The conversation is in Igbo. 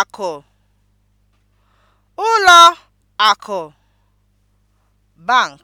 akụ ụlọ akụ (bank)